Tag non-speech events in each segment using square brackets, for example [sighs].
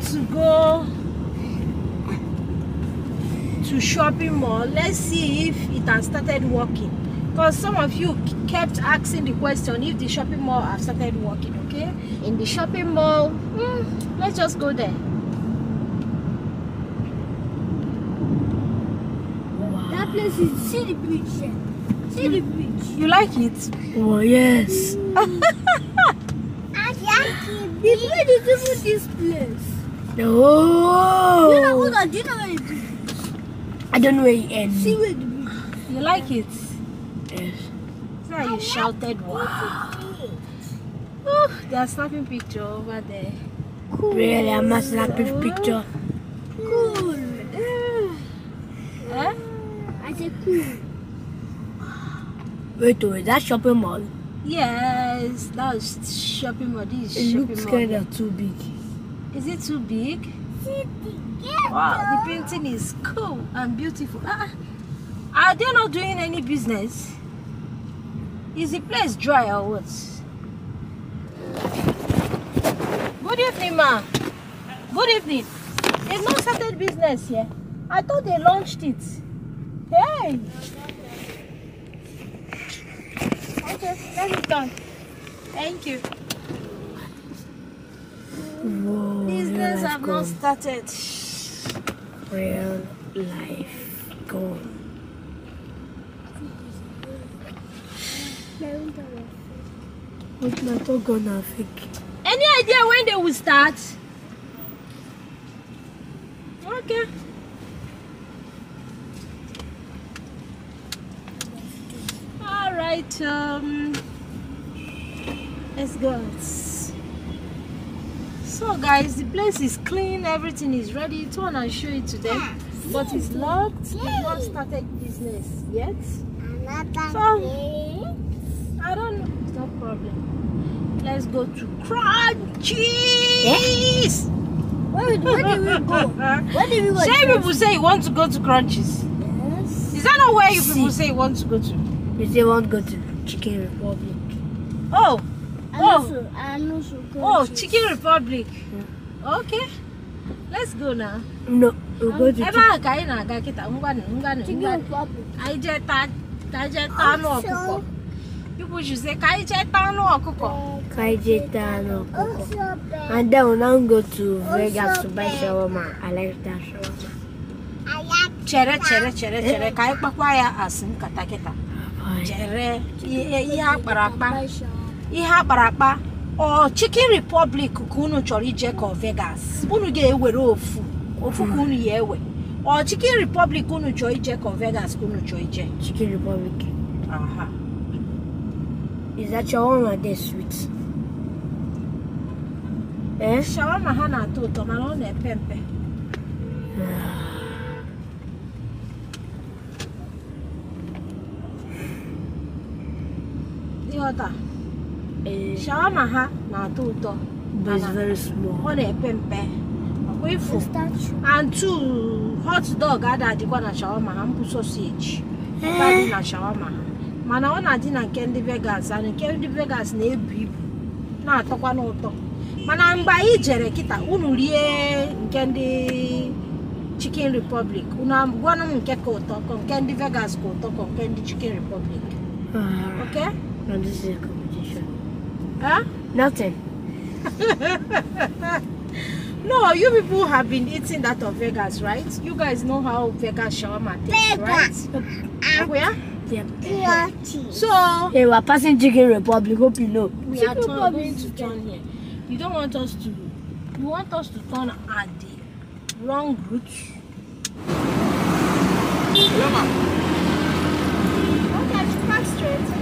to go to shopping mall let's see if it has started working because some of you kept asking the question if the shopping mall has started working okay in the shopping mall hmm, let's just go there wow. that place is see the bridge there see the bridge you like it oh yes [laughs] I like it the bridge is even this place No. You know what? Do I don't know where he ends. See where You like it? Yes. why you shouted, wow. Oh, there's snapping picture over there. Cool. Really, I'm not snapping picture. Cool. Huh? Eh? I said cool. Wait, wait, that shopping mall? Yes, that shopping mall. This it shopping looks kind of too big. Is it too big? Wow, the painting is cool and beautiful. Ah, ah. are they not doing any business? Is the place dry or what? Good evening, ma. Good evening. They've not started business here. I thought they launched it. Hey! Okay, that's it done. Thank you. Business have gone. not started. Real life gone. What's my dog gonna think? Any idea when they will start? Okay. All right. Um, let's go. So oh, guys the place is clean everything is ready it's I'll show it to them but it's locked we've not started business yet so i don't know it's no problem let's go to crunchies eh? where, do, where do we go where do we go say people say you want to go to crunchies yes is that not where you people say you want to go to They say want to go to chicken republic oh Oh. Oh, Chicken Republic. Okay. Let's go now. No, we'll go to Ebe a ka anyị na-aga kịta ngwanụ ngwanụ ngwanụ. Anyị jee taa ka anyị jee taa anụ ọkụkọ. Ikwu juzie ka anyị jee taa anụ ọkụkọ. Ka anyị jee taa anụ ọkụkọ. And then we'll now go to Vegas to buy shawarma. I like that shawarma. Chere chere chere chere ka anyị ya asin kata kita. Chere Iya, iya kpara akpa. ihe akpara akpa ọ chicken republic ka unu chọrọ ije ka vegas unu ga-ewere ofu ofu ka unu ya ewe ọ repọblik republic unu chọọ ije ka vegas ka unu chọọ ije chikin republic aha is that shawarma dey sweet eh ha na-atọ ụtọ mana ọ na-epe mpe ịghọta [sighs] shawama ha na-atọ ụtọ ọ na-epe mpe ọkwa ịfụ antu hot dog adadịkwa na shawama ha mbụ soseji na shawama ha mana ọ na-adị na nke ndị vegas ana nke ndị vegas na-ebu ibu na-atọkwa n'ụtọ mana mgbe anyị jere kịta unu rie nke ndị chicken republic unu gwanụ m nke ka ụtọ ka nke ndị vegas ka ụtọ ka nke ndị chicken republic ah, ok? Huh? Nothing. [laughs] no, you people have been eating that of Vegas, right? You guys know how Vegas shawarma tastes, right? Ah. Where? Yeah. So hey, we're passing Chicken Republic. Hope you know. We Chicken are turn, going to turn here. You don't want us to. You want us to turn at the wrong route. Lama. Okay, straight.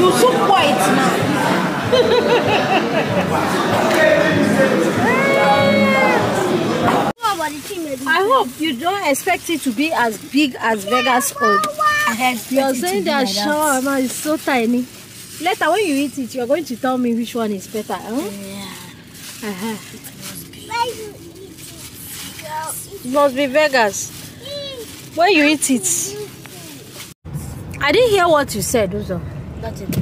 You so quiet now. I hope you don't expect it to be as big as Vegas or you're saying that shawarma is so tiny. Later when you eat it, you're going to tell me which one is better. Huh? Yeah. Uh-huh. It must be Vegas. When you eat it. I didn't hear what you said, Uzo. That's it.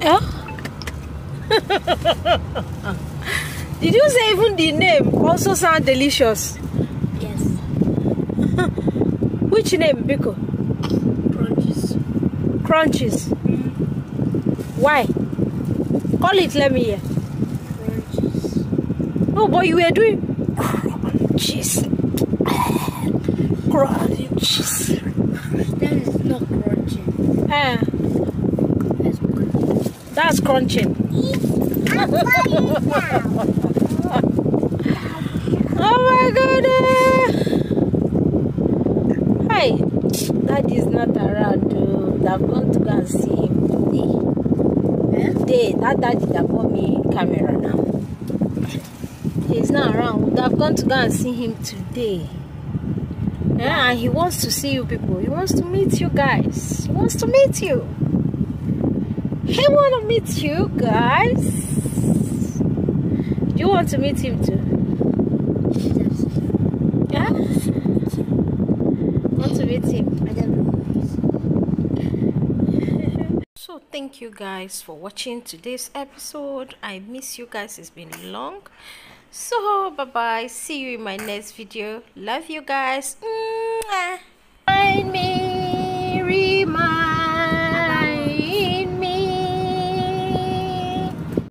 Yeah? [laughs] Did you say even the name also sound delicious? Yes. [laughs] Which name, Biko? Crunches. Crunches. Mm. Why? Call it, let me hear. Crunches. No, boy, you were doing crunches. [laughs] crunches. That is not crunching. Uh. Eh. That's crunching. [laughs] oh my goodness! Eh. Hi, that is not around. I've gone to go and see him today. Eh? Today, that daddy that bought me camera now. He's not around. I've gone to go and see him today. Yeah, he wants to see you people. He wants to meet you guys. He wants to meet you. He want to meet you guys. You want to meet him too? Yeah? Want to meet him? so thank you guys for watching today's episode. I miss you guys. It's been long. So bye bye. See you in my next video. Love you guys. Find me.